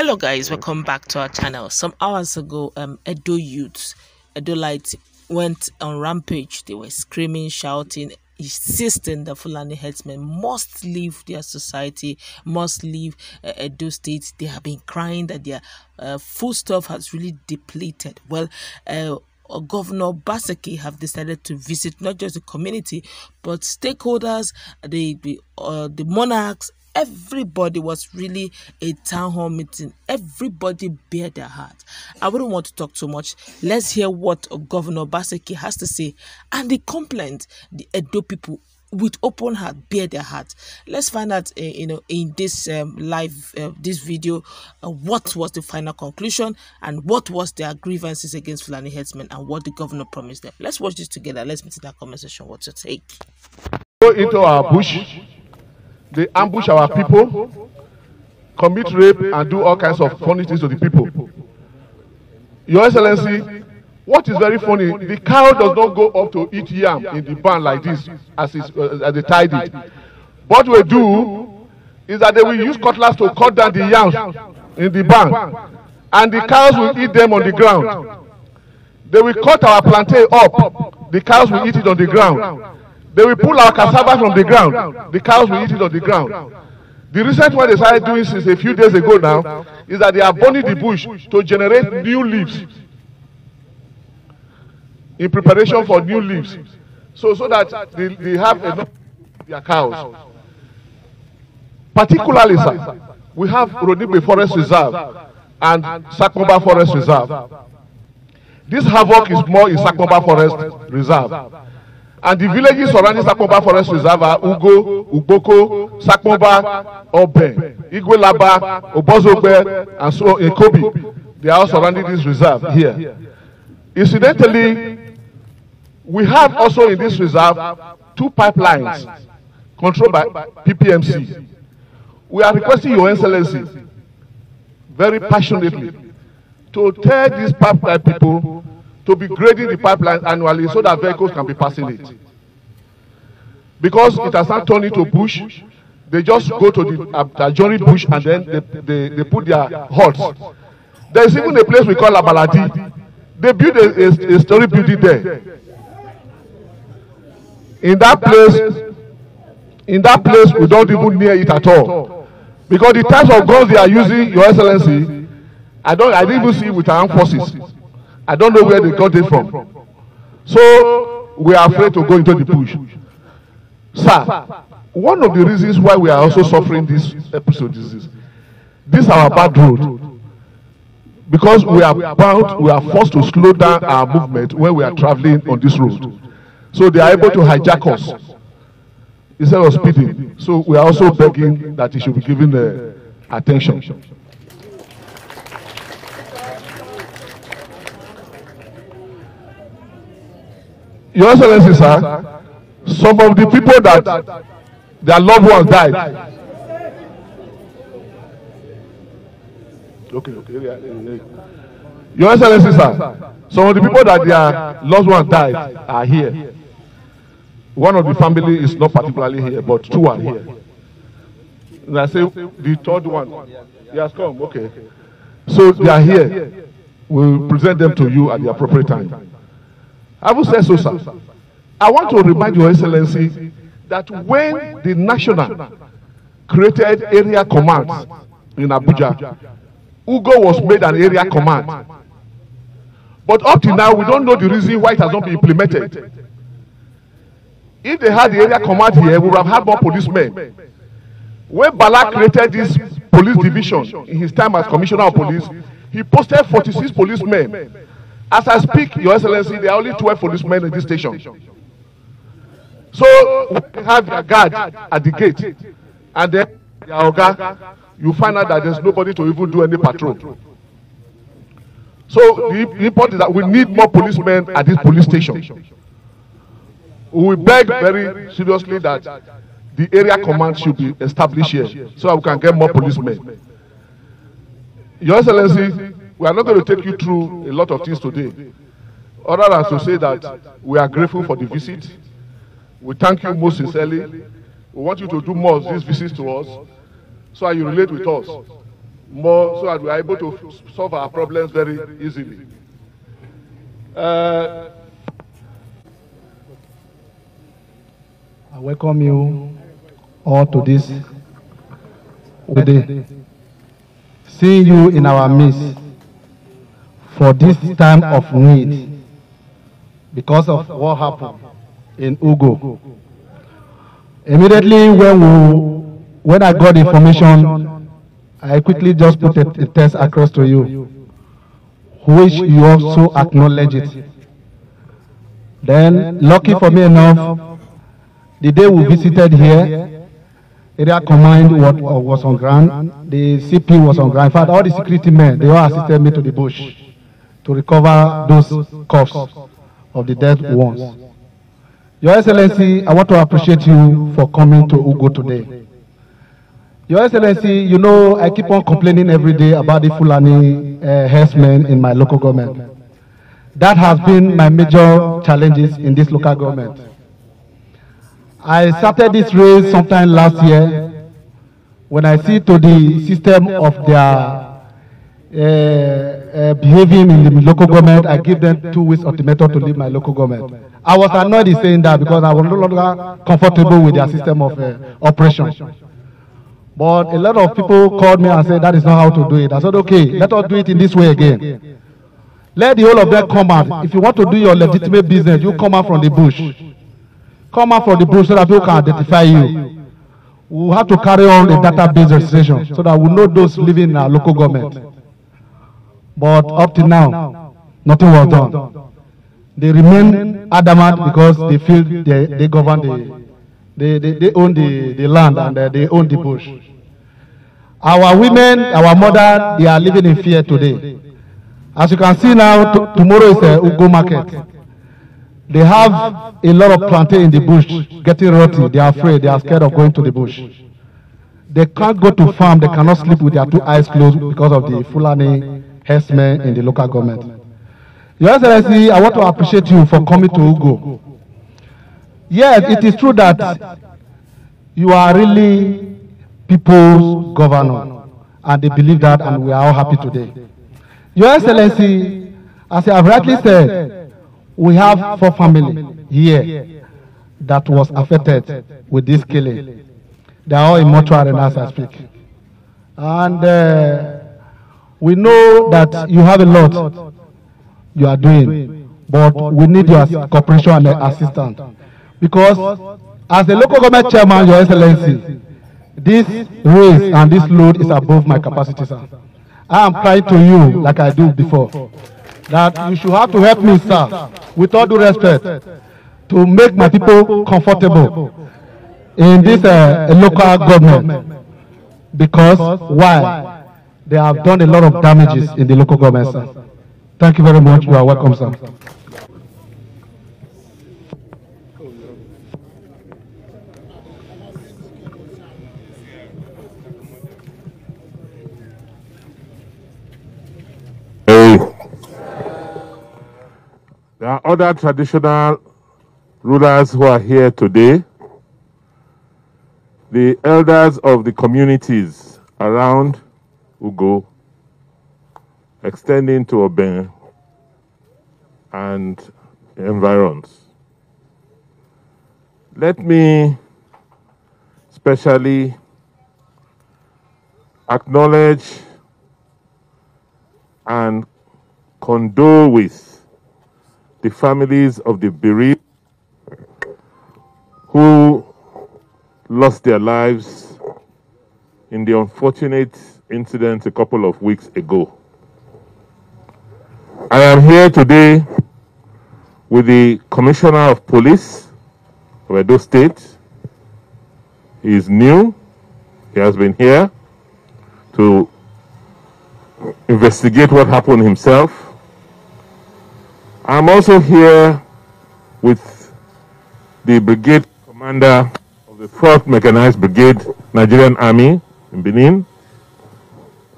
hello guys welcome back to our channel some hours ago um edo youths edo light went on rampage they were screaming shouting insisting that fulani headsmen must leave their society must leave uh, edo state they have been crying that their uh, food stuff has really depleted well uh, uh Governor Basaki have decided to visit not just the community but stakeholders, the the, uh, the monarchs, everybody was really a town hall meeting. Everybody bare their heart. I wouldn't want to talk too much. Let's hear what Governor Baseki has to say and the complaint the Edo people with open heart bare their heart let's find out uh, you know in this um, live uh, this video uh, what was the final conclusion and what was their grievances against Fulani headsmen and what the governor promised them let's watch this together let's meet in that conversation what's your take go into our bush They ambush our people, commit rape, and do all kinds of funny things to the people. Your Excellency, what is very funny, the cow does not go up to eat yam in the barn like this as, is, uh, as they tied it. What we do is that they will use cutlass to cut down the yams in the barn, and the cows will eat them on the ground. They will cut our plantain up, the cows will eat it on the ground. They will pull our cassava from the ground. The cows will eat it on the ground. The recent one they started doing since a few days ago now is that they are burning the bush to generate new leaves in preparation for new leaves. So, so that they, they have enough their cows. Particularly, sir, we have Rodimbe Forest Reserve and Sakomba Forest Reserve. This havoc is more in Sakomba Forest Reserve and the villages surrounding Sakomba Forest Reserve are Ugo, Uboko, Sakomba, Obe, Igwelaba, Obozobe, and so on, Ekobi. They are all surrounding this reserve here. Incidentally, we have also in this reserve two pipelines controlled by PPMC. We are requesting Your Excellency very passionately to tell these pipeline people to be grading the pipeline annually so that vehicles can be passing it. Because it has not turned into bush, they just go to the um, adjoining bush and then they, they, they put their huts. There is even a place we call Abaladi. They built a, a, a story building there. In that place, in that place, we don't even near it at all. Because the types of guns they are using, Your Excellency, I don't I didn't even see with armed forces. I don't know where they got it from. So we are afraid to go into the bush. Sir, one of the reasons why we are also suffering this episode is this. This is our bad road. Because we are bound, we are forced to slow down our movement when we are traveling on this road. So they are able to hijack us instead of speeding. So we are also begging that it should be given the uh, attention. Your Excellency, sir, some of the people that their loved ones died. Okay, okay. Your Excellency, sir, some of the people that their loved ones died are here. One of the family is not particularly here, but two are here. And I say the third one, he has come. Okay. So they are here. We'll present them to you at the appropriate time. Having said so, sir, I want to remind Your Excellency that when the national created area command in Abuja, Ugo was made an area command. But up till now, we don't know the reason why it has not been implemented. If they had the area command here, we would have had more policemen. When Bala created this police division in his time as commissioner of police, he posted 46 policemen As I speak, Your Excellency, there are only 12 policemen in this station. So we have their guard at the gate, and then their oga, you find out that there's nobody to even do any patrol. So the, the important is that we need more policemen at this police station. We beg very seriously that the area command should be established here so that we can get more policemen. Your Excellency, We are not going to take you through a lot of things today, other than to say that we are grateful for the visit. We thank you most sincerely. We want you to do more of these visits to us so that you relate with us more so that we are able to solve our problems very easily. Uh, I welcome you all to this today. Seeing you in our midst for this time of need because of what happened in Ugo. Immediately when, we, when I got information, I quickly just put a, a text across to you, which you also acknowledge it. Then, lucky for me enough, the day we visited here, area command was, was on ground, the CP was on ground. In fact, all the security men, they all assisted me to the bush. to recover those cuffs of the dead ones. Your Excellency, I want to appreciate you for coming to Ugo today. Your Excellency, you know I keep on complaining every day about the Fulani uh, herdsmen in my local government. That has been my major challenges in this local government. I started this race sometime last year when I see to the system of their uh, uh, behaving in the local government, I give them two weeks ultimatum to leave my local government. I was annoyed in saying that because I was no longer comfortable with their system of uh, operation. But a lot of people called me and said that is not how to do it. I said, okay, let us do it in this way again. Let the whole of them come out. If you want to do your legitimate business, you come out from the bush. Come out from the bush so that people can identify you. We have to carry on a database registration so that we know those living in our local government. But up to now, nothing was done. They remain adamant because they feel they, they govern the, they, they, they own the, the land and uh, they own the bush. Our women, our mother, they are living in fear today. As you can see now, tomorrow is a uh, Ugo market. They have a lot of plantain in the bush, getting rotten. They are afraid. They are scared of going to the bush. They can't go to farm. They cannot sleep with their two eyes closed because of the Fulani herdsmen in the local government. Your Excellency, I want to appreciate you for coming to Ugo. Yes, it is true that you are really people's governor, and they believe that, and we are all happy today. Your Excellency, as I have rightly said, we have four families here that was affected with this killing. They are all in mortuary now as I speak. And uh, We know that you have a lot you are doing, but we need your cooperation and assistance. Because as a local government chairman, Your Excellency, this race and this load is above my capacity, sir. I am crying to you like I do before that you should have to help me, sir, with all due respect, to make my people comfortable in this uh, uh local government. Because why? They have done a lot of damages in the local government, sir. Thank you very much. You are welcome, sir. There are other traditional rulers who are here today, the elders of the communities around Ugo, extending to Oben and environs. Let me specially acknowledge and condole with the families of the bereaved who lost their lives in the unfortunate incident a couple of weeks ago. I am here today with the Commissioner of Police of Edo State. He is new. He has been here to investigate what happened himself. I'm also here with the brigade commander of the 4th Mechanized Brigade, Nigerian Army in Benin.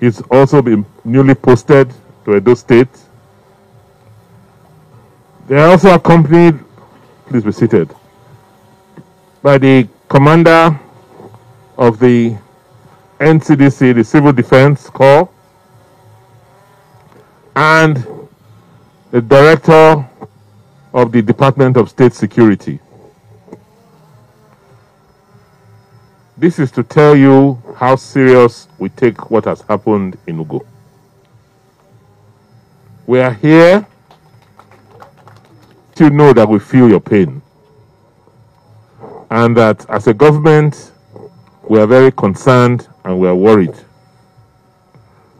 He's also been newly posted to Edo State. They are also accompanied, please be seated, by the commander of the NCDC, the Civil Defense Corps, and the director of the Department of State Security. This is to tell you how serious we take what has happened in Ugo. We are here to know that we feel your pain and that as a government, we are very concerned and we are worried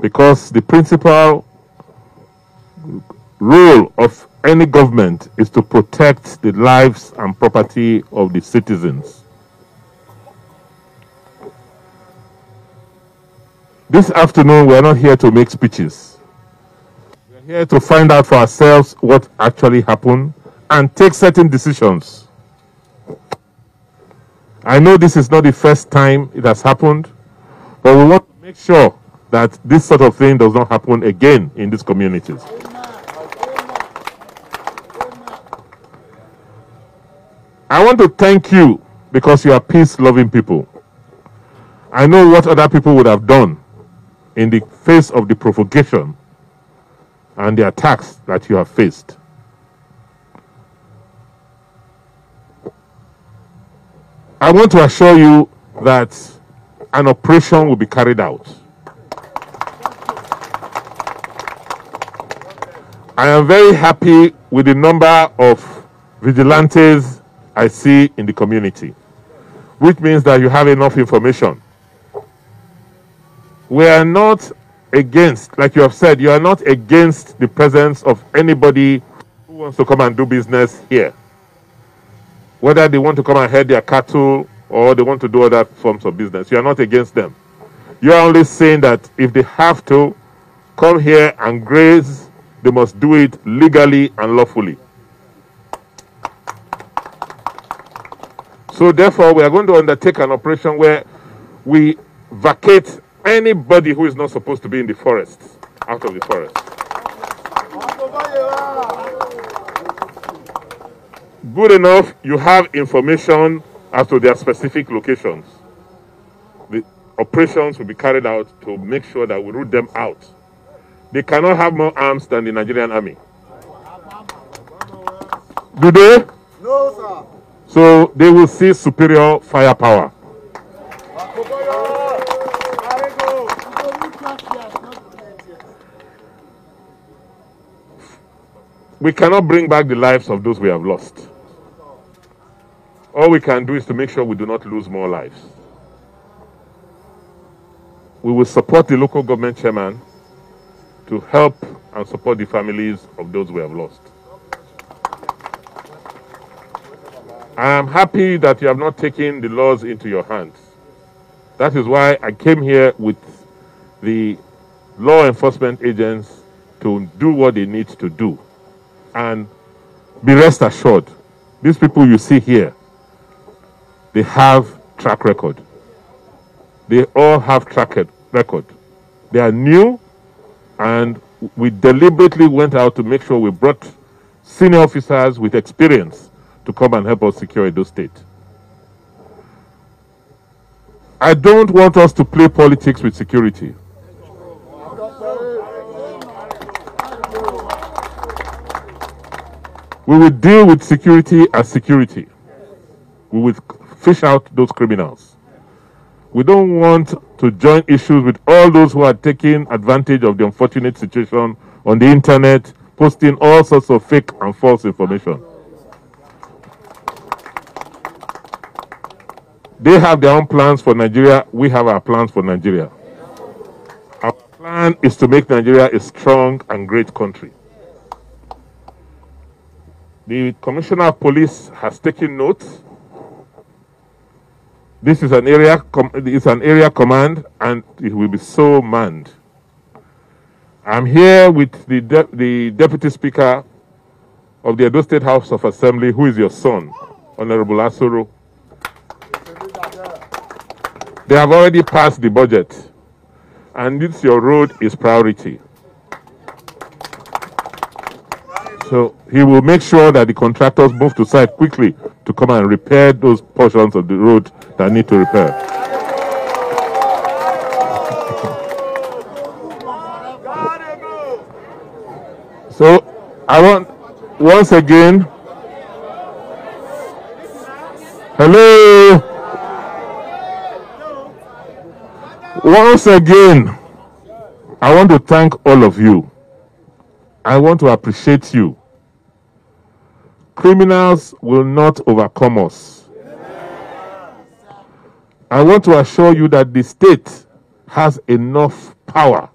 because the principal role of any government is to protect the lives and property of the citizens. This afternoon, we are not here to make speeches. We are here to find out for ourselves what actually happened and take certain decisions. I know this is not the first time it has happened, but we want to make sure that this sort of thing does not happen again in these communities. I want to thank you because you are peace loving people. I know what other people would have done in the face of the provocation and the attacks that you have faced. I want to assure you that an operation will be carried out. I am very happy with the number of vigilantes I see in the community, which means that you have enough information we are not against, like you have said, you are not against the presence of anybody who wants to come and do business here. Whether they want to come and herd their cattle or they want to do other forms of business, you are not against them. You are only saying that if they have to come here and graze, they must do it legally and lawfully. So, therefore, we are going to undertake an operation where we vacate anybody who is not supposed to be in the forest out of the forest. Good enough, you have information as to their specific locations. The operations will be carried out to make sure that we root them out. They cannot have more arms than the Nigerian army. Do they? No, sir. So they will see superior firepower. we cannot bring back the lives of those we have lost. All we can do is to make sure we do not lose more lives. We will support the local government chairman to help and support the families of those we have lost. I am happy that you have not taken the laws into your hands. That is why I came here with the law enforcement agents to do what they need to do. And be rest assured, these people you see here, they have track record. They all have track record. They are new, and we deliberately went out to make sure we brought senior officers with experience to come and help us secure those State. I don't want us to play politics with security. We will deal with security as security. We will fish out those criminals. We don't want to join issues with all those who are taking advantage of the unfortunate situation on the internet, posting all sorts of fake and false information. They have their own plans for Nigeria. We have our plans for Nigeria. Our plan is to make Nigeria a strong and great country. The Commissioner of Police has taken note. This is an area is an area command, and it will be so manned. I'm here with the de the Deputy Speaker of the Edo State House of Assembly, who is your son, Honorable Asuru. They have already passed the budget, and this your road is priority. So he will make sure that the contractors move to site quickly to come and repair those portions of the road that need to repair. So I want once again. Hello. Once again, I want to thank all of you. I want to appreciate you Criminals will not overcome us. I want to assure you that the state has enough power.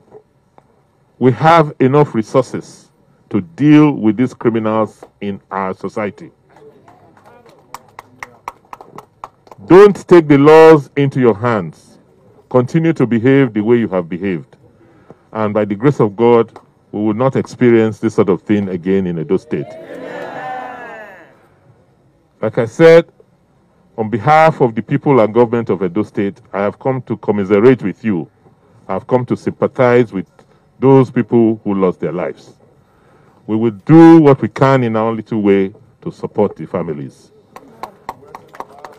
We have enough resources to deal with these criminals in our society. Don't take the laws into your hands. Continue to behave the way you have behaved. And by the grace of God, we will not experience this sort of thing again in Edo State. Amen. Like I said, on behalf of the people and government of Edo State, I have come to commiserate with you. I have come to sympathize with those people who lost their lives. We will do what we can in our little way to support the families.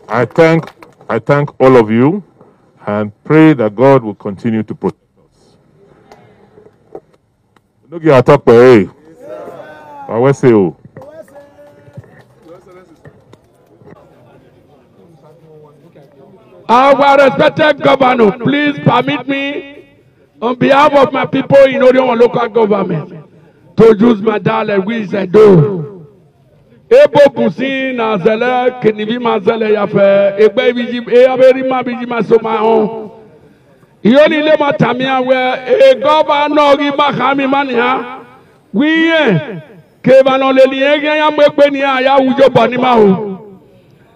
I thank, I thank all of you and pray that God will continue to protect us. Look Our respected governor, please permit me, on behalf of my people in Orion local government, to use my dialect, which I do. Ebo kusi na zele kenivi mazele yafe Ebe biji e aberi ma biji masoma on yoni le matamia we e governor gi mahami mania wiye eh, kevano banoleli ege ya mwekwe ya aya ujo bani mahu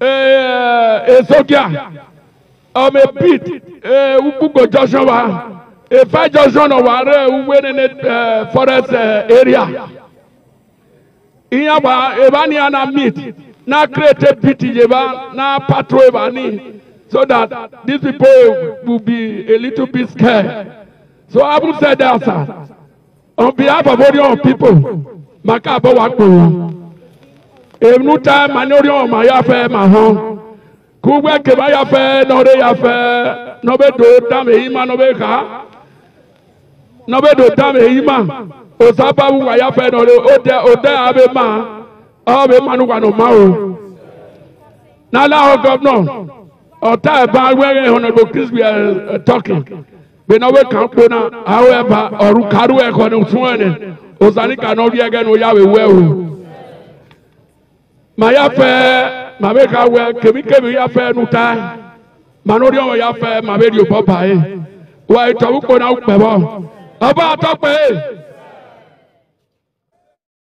Ezogya, eh, eh, ome pit eh, Ukpugo junction wa Ifa junction wa re Uwere forest area ihe agba ebe anyị ya na meet na create pit yeba na patrol ebe anyị so that these people will be a little bit scared so having said that on behalf of all Orion people maka abọwa enuta manori ọma ya fẹ ma hàn kugbe keba ya fẹ nọre ya fẹ nọbe do tam eyi ma nọbe ha nọbe do tam eyi ma osabawu wa ya fẹ nọre o tẹ o tẹ abe ma ọbe manu wa no ma o n'ala ọ gọvnọ ọta ẹba wẹrẹ ọnọdọ kristu ẹ tọki gbẹnọwe kan kpona awọ ẹba ọrụ karu ẹkọ ni fún ẹni osanika nọri ẹgẹ ni o ya wẹ wẹ o ma ya fɛ ma bɛ ka wɛ kebi ya fɛ nuta ma n'o de ya fɛ ma bɛ di o bɔ ba ye wa itabu ko n'aw kpɛ bɔ a b'a tɔ kpɛ